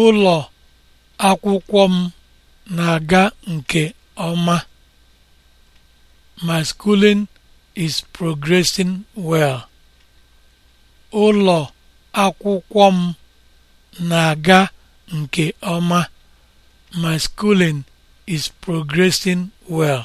Ụlọ akwụkwọ m na-aga nke ọma. My schooling is progressing well. is progressing well.